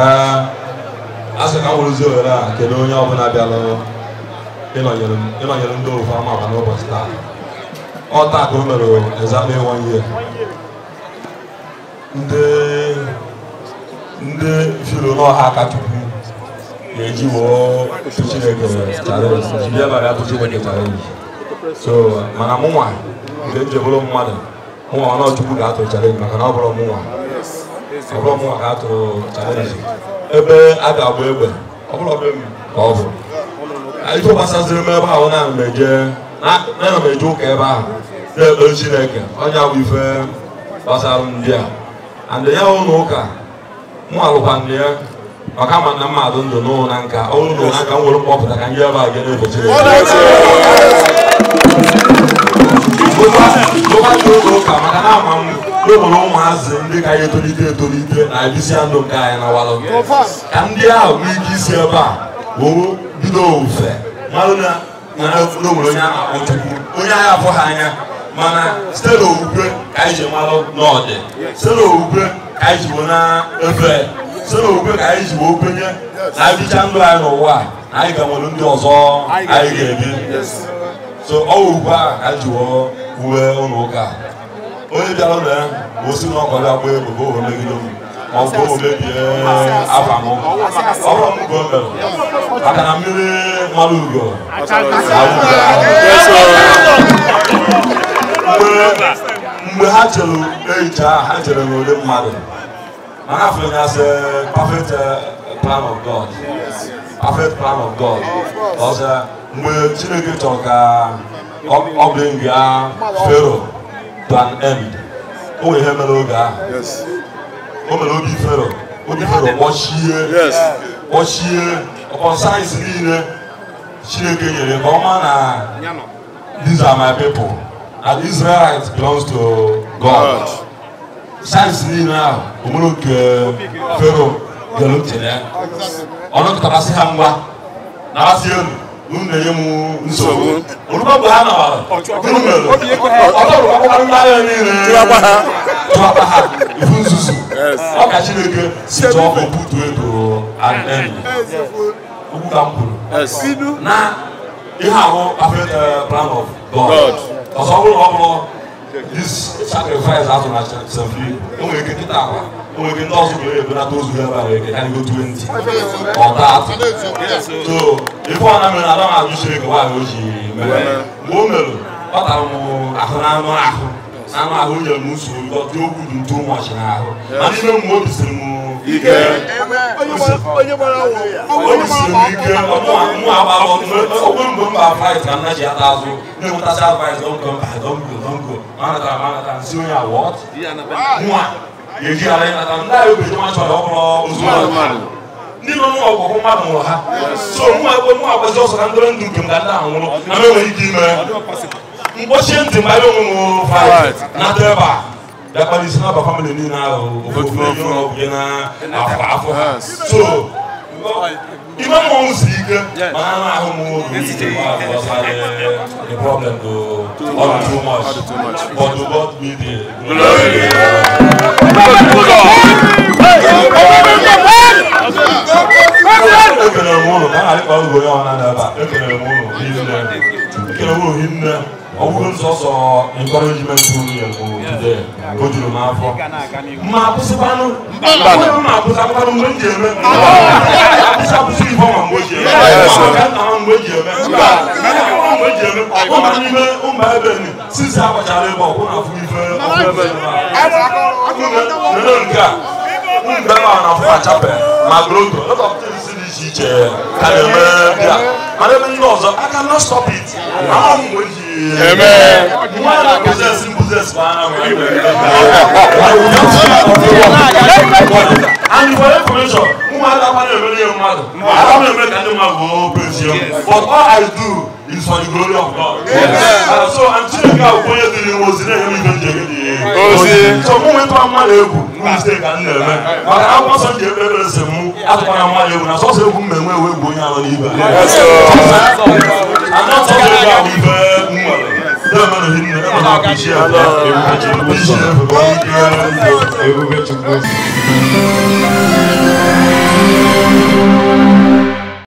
ee a sị ka m ohere a kedu onye ọbụla bịara ịnọnyere ndị ofu ama aba n'ụbọchị taa ọ taa ka o mere exactly one year ndị ndị filo n'ọha aka chukwu ga-eji woo Chineke chalenji jiri abalị atụ Chineke chalenji so mana mụnwa mgbe m mmadụ mụnwa nọ ga-atụ chalenji maka na ọ bụrụ mụnwa ọbụrụ mụ ka atụrụ chalenji ebe a ga-agba egbe ọbụrụ ọbụrụ m ka ọ bụ ife gbasaziri m ebe ahụ na m eje na m eje ụka ebe ahụ na-ekpe chineke onye bụ ife gbasara ndị a andị ya ụlọ ụka mụ alụkwanụ ya maka ma na mmadụ ndụ n'ụlọ na nka ọrụ na ụlọ nka m nwere mkpọpụta ka ndị ebe a ga na-efe chineke ụka maka na ama m n'obodo ụmụazị ndị ka anyị etolite etolite na-ebisia ndụ nke anyị na walụ ka ndị ahụ nwee ike isi ebe a woo bido ofufe marụ na n'obodo onye a na-akpọ Chukwu onye agha afọ ha anya mana site n'okwukwe ka anyị ji malụ n'ọdị site n'okwukwe ka anyị ji na-efe site n'okwukwe ka anyị ji wee kwenye na abịcha ndụ anyị n'ụwa na anyị ga nwere ndị ọzọ anyị ga-ebi so ọ wụkwa ka anyị ji wee wuwe ụlọ ụka onye bịara ụlọ ya osi na ọkọ ya gbaa egbe oo megide m ma ọ bụ mebie afa m ọrụ m ka o mere maka na mmiri mara ugo mgbe ha chere ehicha ha chere na ole mmadụ mana afọ ya sị perfect plan of God perfect plan of God ọzọ mgbe Chineke chọrọ ka ọ bụrụ nga fero than end o wee ihe mere oge ahụ o mere obi fero obi fero kpọchie kpọchie ọkpọ sayensị niile chineke nyere ka ọma na these are my people and israelite belongs to god sayensị niile ahụ omere oke fero bịara uche ya ọ nọkọtara sị ha ngwa na-asị elu mun de ye mu nsogbu olu ka bɔ ha na wa minnu bɛ lɔ ɔtɔ olu ka bɔ ha yɛ min yɛrɛ tuba ha tuba ha ifu nsusu aw ka si de kɛ si tɔ ko bu to ye to a nɛn ye u b'u ka nkolo na i ha ko afɛ ɛɛ eh, plan of god ɔsɔ wolo wɔ kɔnɔ sacrifice azụ na chafi enwere ike nkịta akwa enwere ike ndị ọzọ nwere ebe nata ozu ebe a nwere ike karịgo 20 ọtatụ so ife ọ na mere na adam ajụ chere ka nwaanyị o ji mere mgbe o mere ọ tara m ahụ na ahụ na anụ ahụ okwu dị ntu ụmụọchị n'ahụ na n'ime mmụọ obi siri m ike onye gbara mụ agbara ogbe mgbe mba frit ka nna ata azụ na-enwetacha advice dongo mba dongo dongo manata manata nsi onye awọt nwa ejigharị nata ndị ahụ obeji nwa chọrọ ọhụrụ ozugbo ndị nọ n'ọgwụgwụ mmadụ nwụrụ ha so nwa egbe nwa agbazi ọsọ na ndọrọ ndụ nke m ga ndị ahụ nwụrụ na m ike ime mkpọchie ntị mgbe anyị onwe m frit na ebe Japanese na ba family ni na o ko ko so ima mo nsi ike ma na na ahụ mo ni problem go all too much but to God be the glory Ekele m ụlọ, ka a na-alịkpa ụlọ ya ọ na-adaba. Ekele m ụlọ, hinne. Ekele m ụlọ, hinne. ọwụrụ nsọsọ encouragement unu ya bụ today ka o afọ ma akwụsịkwanụ ma akwụsịkwanụ mgbe m ji eme akwụsị akwụsị ifo ma mgbe ji eme maka nna ha mgbe ji eme mgbe ji eme ụmụ n'ime ụmụ ebe ni sisi agbachara ebe ọkwụ na afụ ife ọkwụ ebe nere nke a mgbe ma na afọ achape ma groto lot of things dị iche iche ka na-eme ndị a mana ebe ndị ọzọ I cannot stop it Amen. And for information, mmadụ akwana emere ya mmadụ, mmadụ emere ka ndị mmadụ wee praise him. But all I do is for the glory of God. And so I'm telling you, I'll point you to the ozi na-enye m ibe m ji ege dị ozi. So mụ nwetụ mmadụ egwu, mụ mistake ka m na-eme. Maka akwụkwọ nsọ ji ekpe ekpere sị mụ atụkwala mmadụ egwu na sọsọ egwu m na-enwe ewe bụ onye anọ n'ibe. I'm not talking about ibe. ala you. chukwu ebube chukwu